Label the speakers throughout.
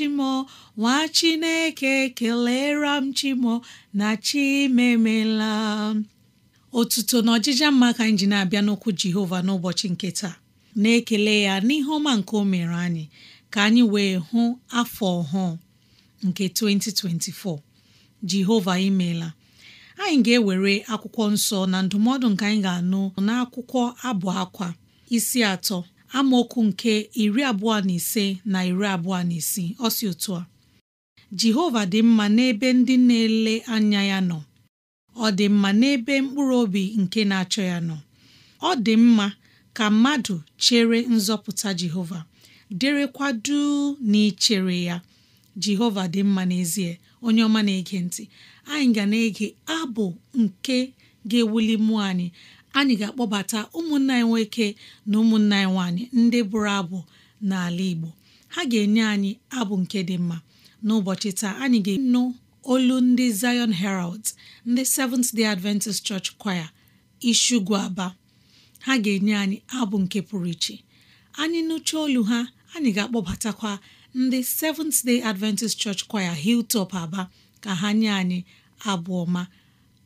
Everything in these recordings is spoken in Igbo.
Speaker 1: chimo nwa chineke kelere m chimo na chimemela otuto na ọjịja mma ka anyị ji na-abịa n'okwu jehova n'ụbọchị nke taa na-ekele ya n'ihe ọma nke o mere anyị ka anyị wee hụ afọ ọhụụ nke 2024 jehova imela anyị ga-ewere akwụkwọ nsọ na ndụmọdụ nke anyị ga-anụ n'akwụkwọ abụ akwa isi atọ amaokwu nke iri abụọ na ise na iri abụọ na isii ọsị otu a Jehova dị mma n'ebe ndị na-ele anya ya nọ ọ dị mma n'ebe mkpụrụ obi nke na-achọ ya nọ ọ dị mma ka mmadụ chere nzọpụta Jehova derekwa duu na ya Jehova dị mma n'ezie onye ọma na-ege ntị anyị ga na-ege abụ nke ga-ewuli mmụọ anyị anyị ga-akpọbata ụmụnna anyị nwoke na ụmụnna anyị nwaanyị ndị bụrụ abụ n'ala Igbo ha ga-enye anyị abụ nke dị mma n'ụbọchị taa anyị ga-enụ olu ndị Zion Herald ndị Seventh Day Adventist Church Choir Isugwu Aba ha ga-enye anyị abụ nke pụrụ iche anyị nụcha olu ha anyị ga-akpọbatakwa ndị Seventh Day Adventist Church Choir Hilltop Aba ka ha nye anyị abụ ọma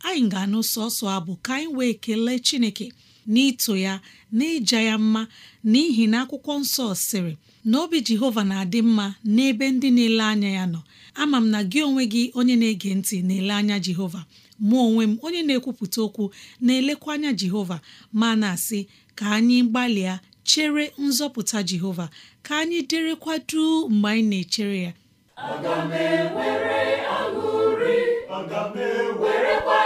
Speaker 1: anyị ga-anụ sọsọ abụ ka anyị wee kelee Chineke n'ito ya n'ịja ya mma n'ihi na akwụkwọ nsọ sịrị na obi Jehova na-adị mma n'ebe ndị na-ele anya ya nọ ama m na gị onwe gị onye na-ege ntị na-ele anya Jehova mụ onwe m onye na-ekwupụta okwu na-elekwa anya Jehova ma na-asị ka anyị gbalịa chere nzọpụta Jehova ka anyị derekwa duu mgbe anyị na-echere ya
Speaker 2: aga m ewere aṅụrị aga m
Speaker 1: ewerekwa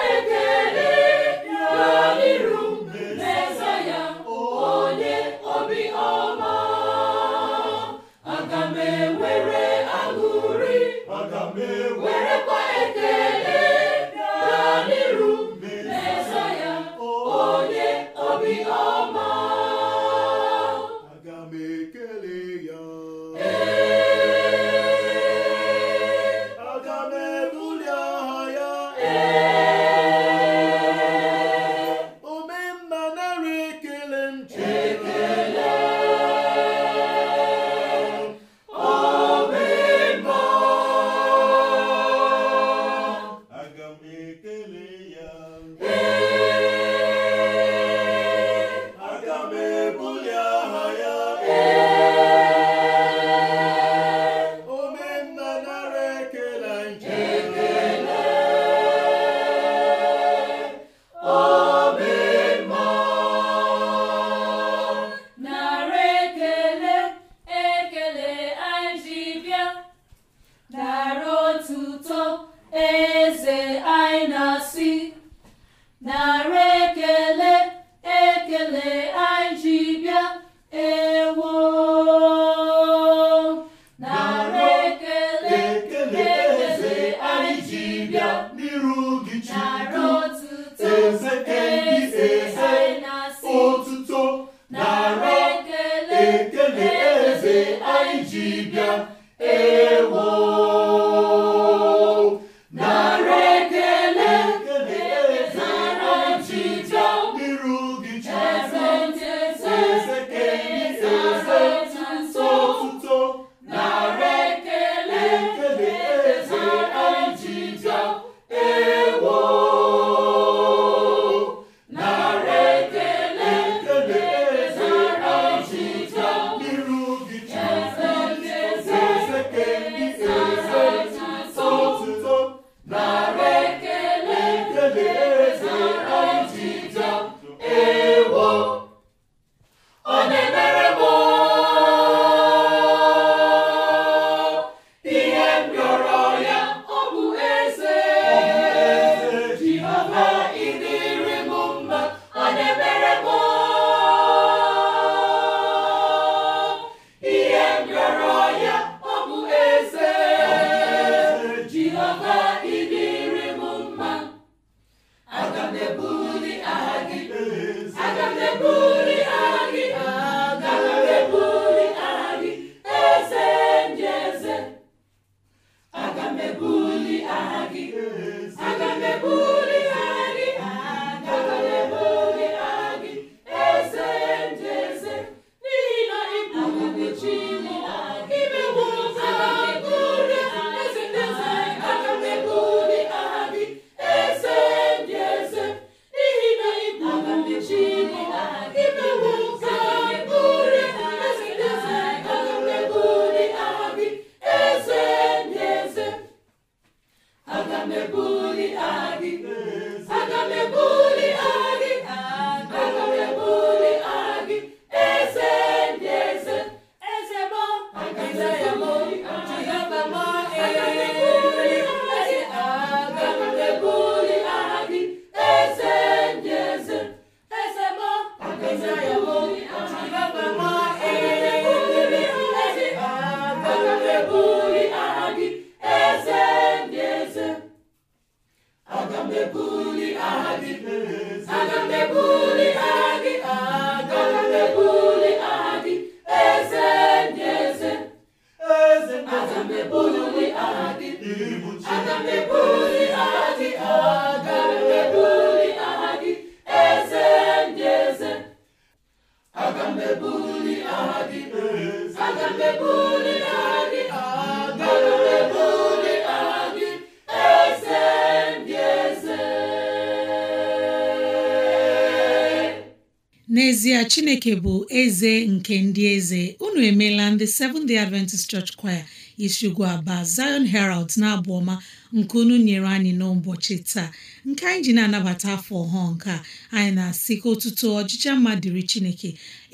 Speaker 2: Aga m ebu
Speaker 1: chineke bụ eze nke ndị eze unu emeela ndị Seventh Day Adventist Church Choir Ishigu Aba Zion Herald na-abụ ọma nke unu nyere anyị n'ụbọchị taa nke anyị ji na-anabata afọ ọhụụ nke anyị na-asị ka otuto ọchịchị mma dịrị chineke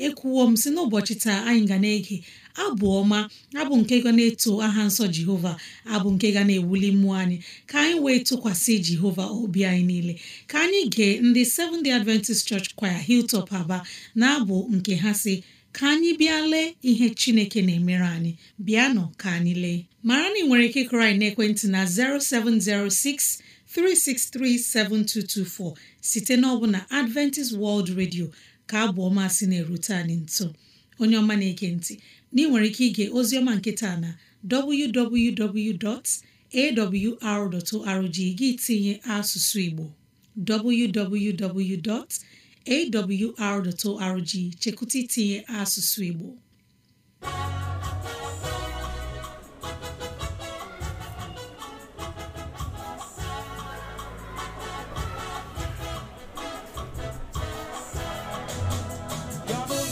Speaker 1: ekwuwo m si n'ụbọchị taa anyị ga na-ege abụ ọma abụ nke ga na-eto aha nsọ jehova abụ nke ga na-ewuli mmụọ anyị ka anyị wee tụkwasị jehova obi anyị niile ka anyị gee ndị Seventh Adventist Church Choir Hilltop Aba na-abụ nke ha si ka anyị bịa lee ihe chineke na-emere anyị bịanụ ka anyị lee mara na ị nwere ike kụrụ anyị n'ekwentị na 0706 site site na Adventist World Radio ka abụ ọma si na-erute anyị nso onye ọma na-ege ntị na ị nwere ike ige ozioma nke na www.awr.org gị tinye asụsụ Igbo www.awr.org chekụta itinye asụsụ Igbo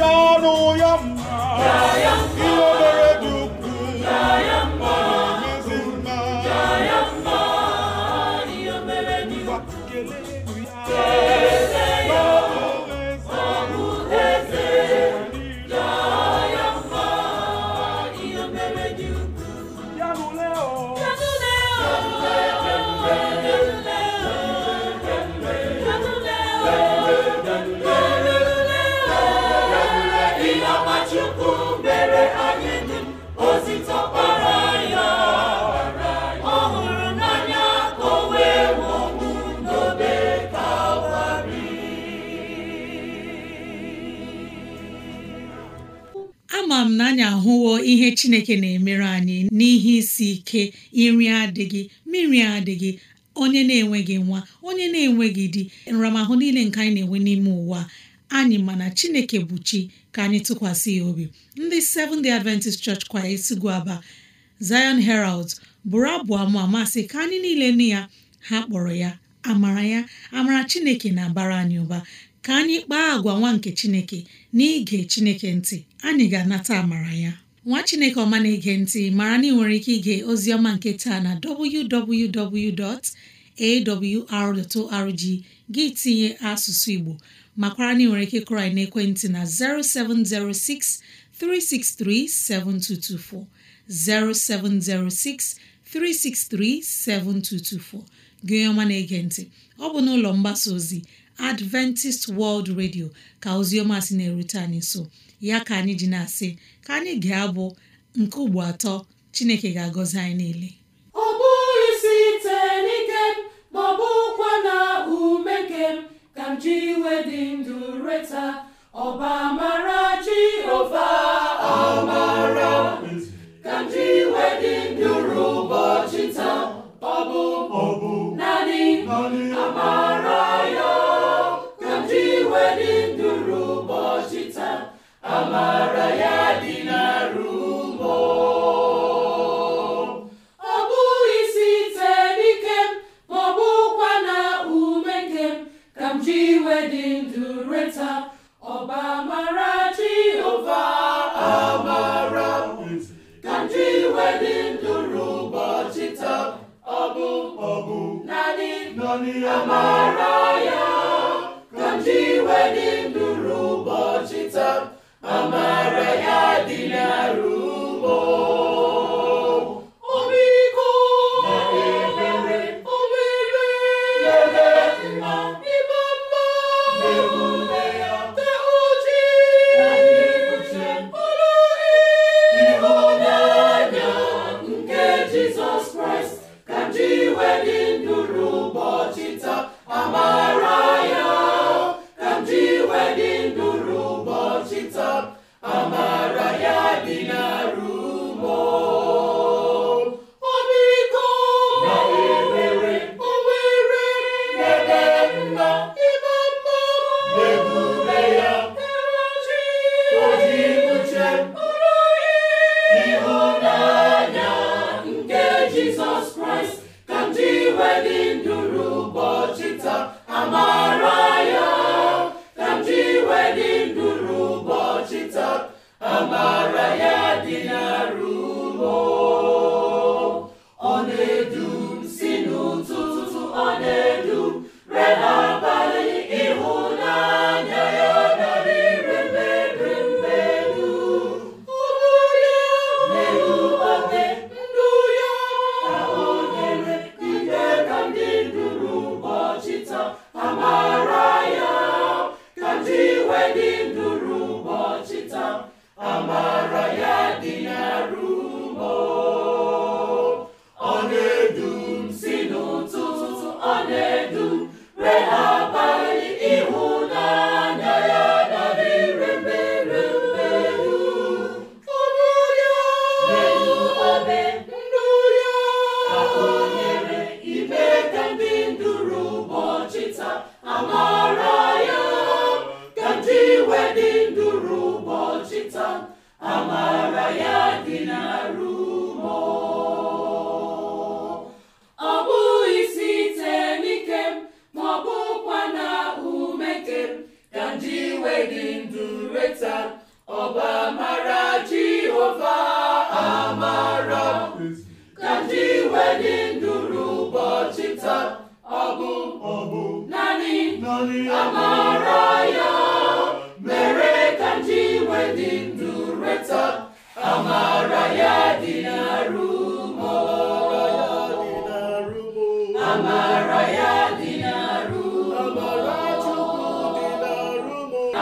Speaker 2: a ọnụ yọaa a
Speaker 1: nke chineke na-emere anyị n'ihe isi ike nri adịghị mmiri adịghị onye na-enweghị nwa onye na-enweghị di nramahụ niile nke anyị na-enwe n'ime ụwa anyị mana chineke bụ chi ka anyị tụkwasị ya obi ndị Seventh-day Adventist Church Choir gu Aba Zion Herald bụrụ abụ ama amasị ka anyị niile nụ ya ha kpọrọ ya amara ya amara chineke na-abara anyị ụba ka anyị kpaa agwa nwa nke chineke na ige chineke ntị anyị ga-anata amara ya nwa chineke ọma na-ege ntị mara na ị nwere ike ige oziọma nke taa na www.awr.org gị tinye asụsụ igbo makwara na ị nwere ike kụrụ anyị n'ekwentị na 0706 363 7224 0706 363 7224 gị ọma na-ege ntị ọ bụ n'ụlọ mgbasa ozi Adventist World Radio ka oziọma si na-erute anyị nso ya ka anyị ji na-asị ka anyị ga-abụ nke ugbo atọ Chineke ga-agọzi anyị niile
Speaker 2: ọ n'ike bụkwa na ume ji ka m ji iwe dị ndụ ụbọchị taa amara ya ka m ji iwe dị ndụ ụbọchị taa amara ya dị n'arụ Hallelujah.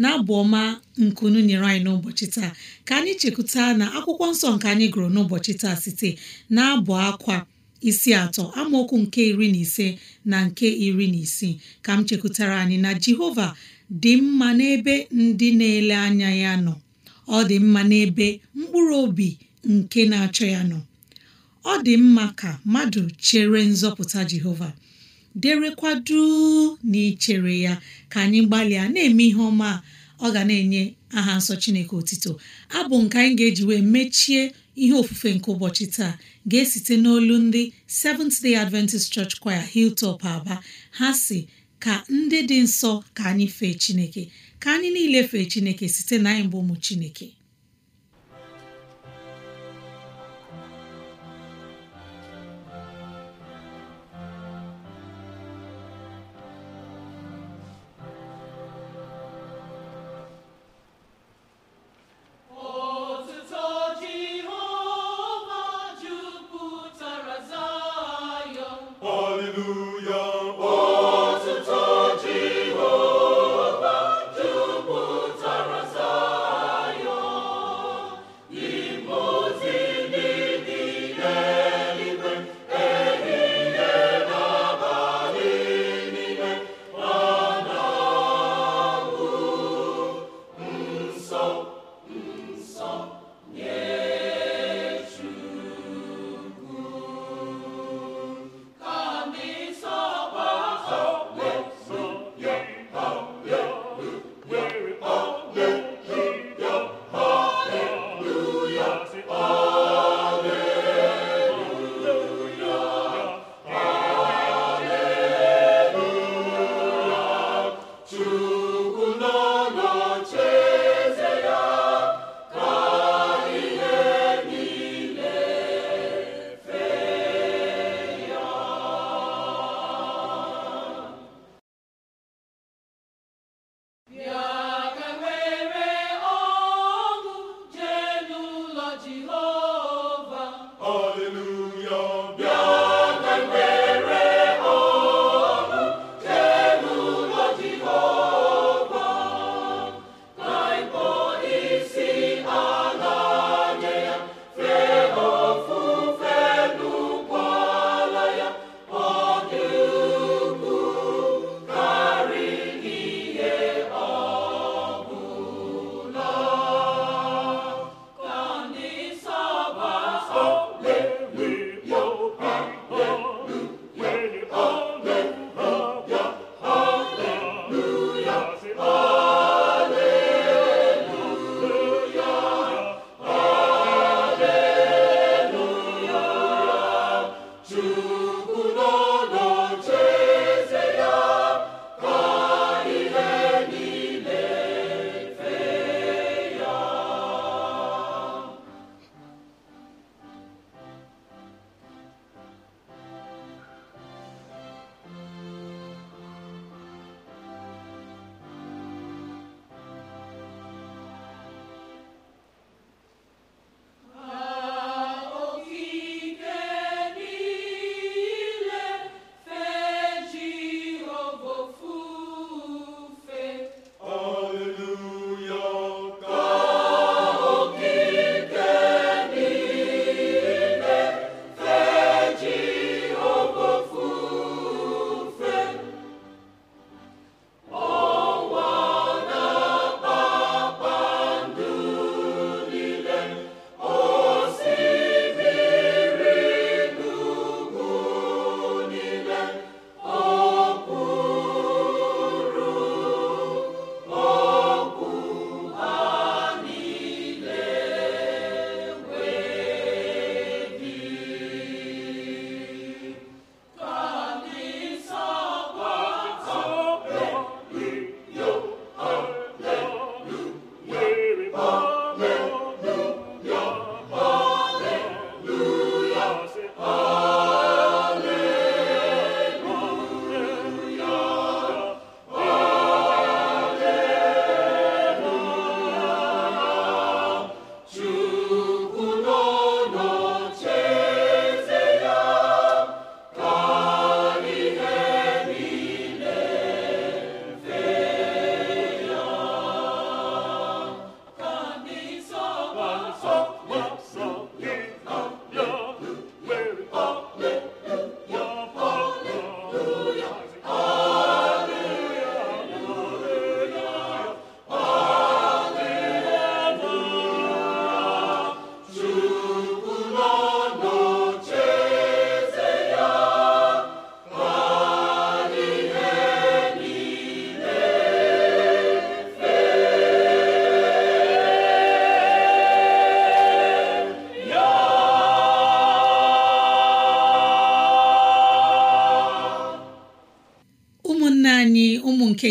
Speaker 1: na abụ ọma nkunu nyere anyị n'ụbọchị taa ka anyị chekwuta na akwụkwọ nsọ nke anyị gụrụ n'ụbọchị taa site na abụ akwa isi atọ amaokwu nke iri na ise na nke iri na isii ka m chekwutara anyị na Jehova dị mma n'ebe ndị na-ele anya ya nọ ọ dị mma n'ebe mkpụrụ obi nke na-achọ ya nọ ọ dị mma ka mmadụ chere nzọpụta Jehova derekwadu na ichere ya ka anyị gbalịa na-eme ihe ọma ọ ga na-enye aha nsọ chineke otito abụ nke anyị ga-eji wee mechie ihe ofufe nke ụbọchị taa ga-esite n'olu ndị Seventh Day Adventist Church Choir Hilltop Aba ha si ka ndị dị nsọ ka anyị fee chineke ka anyị niile fee chineke site na anyị bụ ụmụ chineke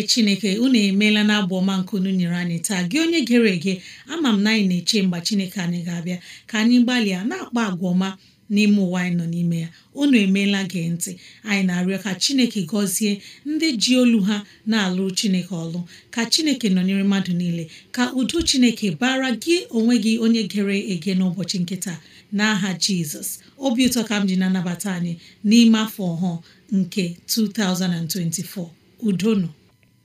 Speaker 1: ndị chineke unu emeela na abụ ọma nke unu nyere anyị taa gị onye gere ege ama m na anyị na-eche mgbe chineke anyị ga-abịa ka anyị gbalịa na-akpa agwa ọma n'ime ụwa anyị nọ n'ime ya unu emeela gị ntị anyị na-arịọ ka chineke gọzie ndị ji olu ha na-alụ chineke ọlụ ka chineke nọnyere mmadụ niile ka udo chineke bara gị onwe gị onye gere ege n'ụbọchị nke taa n'aha jizọs obi ụtọ ka m ji na-anabata anyị n'ime afọ ọhụụ nke 2024 nọ.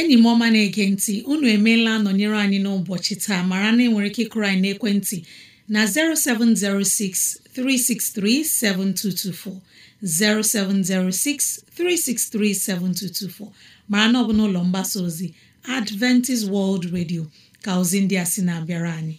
Speaker 1: enyi m ọma na-ege ntị unu emeela nọnyere anyị n'ụbọchị taa mara na enwere ike ịkụrụ anyị n'ekwentị na 0706 363 7224 0706 363 7224 mara na ọ bụ n'ụlọ mgbasa ozi Adventist World Radio ka ozi ndị a sị na-abịara anyị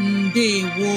Speaker 1: ndewo